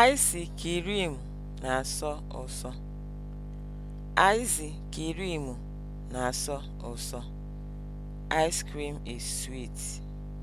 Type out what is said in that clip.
Aịsị kriimu na-asọ ụsọ. Aịsị kriimu na-asọ ụsọ. Ice cream is sweet.